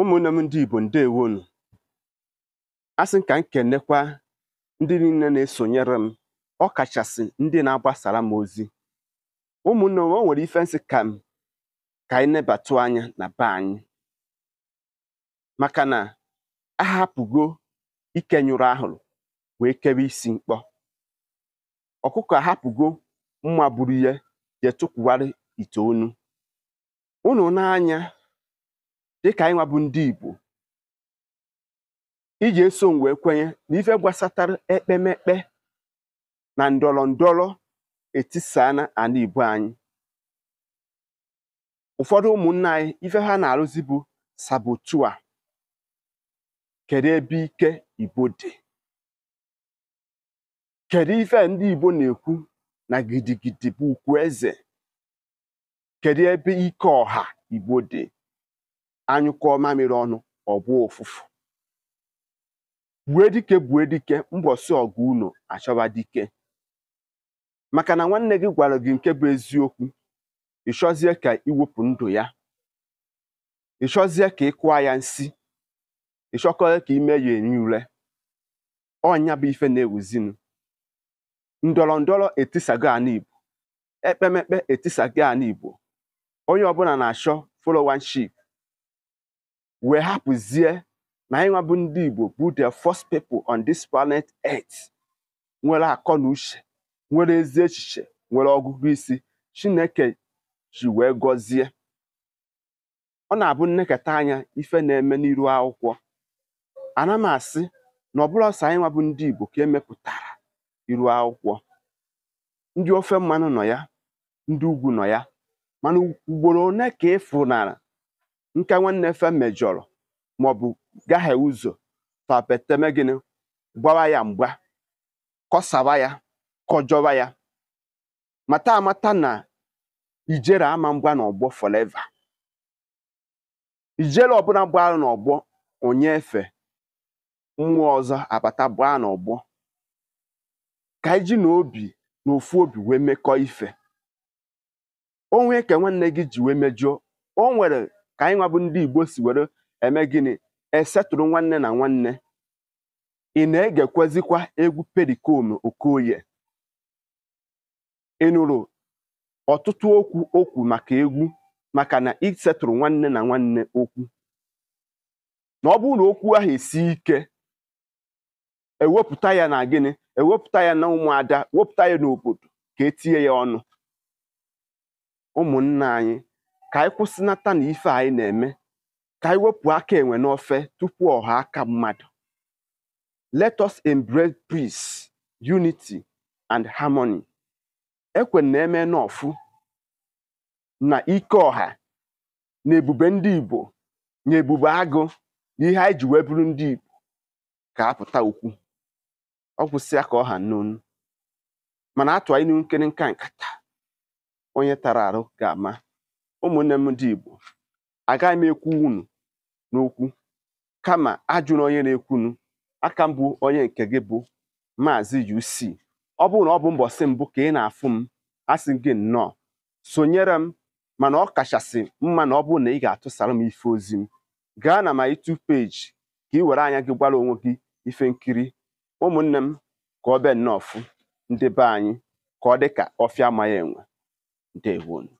ụmụnne m ndị igbo ndewonu asị m ka m kenekwa ndị niile na-esonyere m ọ kachasị ndị na-agbasara m ozi ụmụnne m o nwere ife nsị ka m ka anyị nebatụ anya na be anyị maka na ahapụgo ike nyụrụ ahụrụ wee kebe isi mkpọ ọkụkọ ahapụgo mma buru ya jee tụkwuwarị ite onu unu n'anya dịka anyị nwa bụ ndị Igbo iji eso m wee kwenye na ife gbasatara ekpemekpe na ndọrọ ndọrọ etisana ala Igbo anyị ụfọdụ ụmụnna anyị ife ha na-arụzi bụ sabotua kedu ebe ike Igbo dị kedu ife ndị Igbo na-ekwu na gidigidi bụ ukwu eze kedu ebe ike ọha Igbo dị anyụkọọ mamịrị ọnụ ọbụ ụfụfụ bue dike bue dike mbọsị ọgụ unu achọba dike maka na nwanne gị gwara gị nke bụ eziokwu ịchọzie ka iwepụ ndụ ya ịchọzie ka ị kụọ ya nsị ịchọkọrọ ka ime ya eri ure ọnya bụ ife na-ewuzinu ndọrọ ndọrọ etisago ana ekpemekpe etisago anigbo onye ọbụla na-achọ folowanship wee hapụzie na anyị bụ ndị Igbo bụ the first people on this planet earth nwere akọ na uche nwere ezi echiche nwere ọgụgụ isi Chineke ji wee gọzie ọ na-abụ nnekọta anya ife na-eme n'iru akwụkwọ ana m asị na ọbụla ọsọ anyị nwabụ ndị Igbo ka emepụtara iru akwụkwọ ndị ofe mmanụ nọ ya ndị ugwu nọ ya mana ugboro one ka ịfụnara nke nwanne fe mejọrọ maọbụ gaghị ụzọ fapeteme gịnị gbawa ya mgba kọsawa ya kọjọwa ya mata amata na ijere ama mgba na ọgbọ foleva ijere ọbụla na ọgbọ onye efe mmụọ ọzọ abata gbaa ọgbọ ka iji na obi na ofu obi wee mekọọ ife onwe ka nwanne gị ji wee mejọ o nwere ka anyị ndị igbo si were eme gịnị esetụrụ nwanne na nwanne ị na-egekwezikwa egwu Pericom Okoye ị nụrụ ọtụtụ okwu okwu maka egwu maka na isetụrụ nwanne na nwanne okwu na ọ bụrụ na okwu ahụ esi ike ewepụta ya na gịnị ewepụta ya na ụmụada wepụta ya n'obodo ka etinye ya ọnụ ụmụnna anyị ka anyị kwụsịnata na ife anyị na-eme ka anyị wepụ aka enwe n'ofe tupu ọha aka mmadụ let us embrace peace unity and harmony ekwe na eme n'ọfụ na ike ọha na ebube ndị Igbo na ebube agụ na ihe anyị ji wee ndị Igbo ka apụta ukwu ọ kwụsịa ka ọha n'onu mana atụ anyị n'ihu nkiri nka nkata onye tara arụ ga-ama ụmụnne m ndị Igbo agaghị m ekwu unu n'okwu kama ajụrụ onye na-ekwunu aka mbụ onye nke gị bụ Maazị UC ọ bụrụ na ọ bụ mbọsị mbụ ka ị na-afụ m asị gị nnọọ sonyere m mana ọ kachasị mma na ọ bụrụ na ị ga-atụsara m ife ozi m gaa na ma itu peji ka ị were anya gị gwara onwe gị ife nkiri ụmụnne m ka ọ bịa nnọọ fụ ndị be anyị ka ọ dị ka ọfịa amaghị enwe ndewonu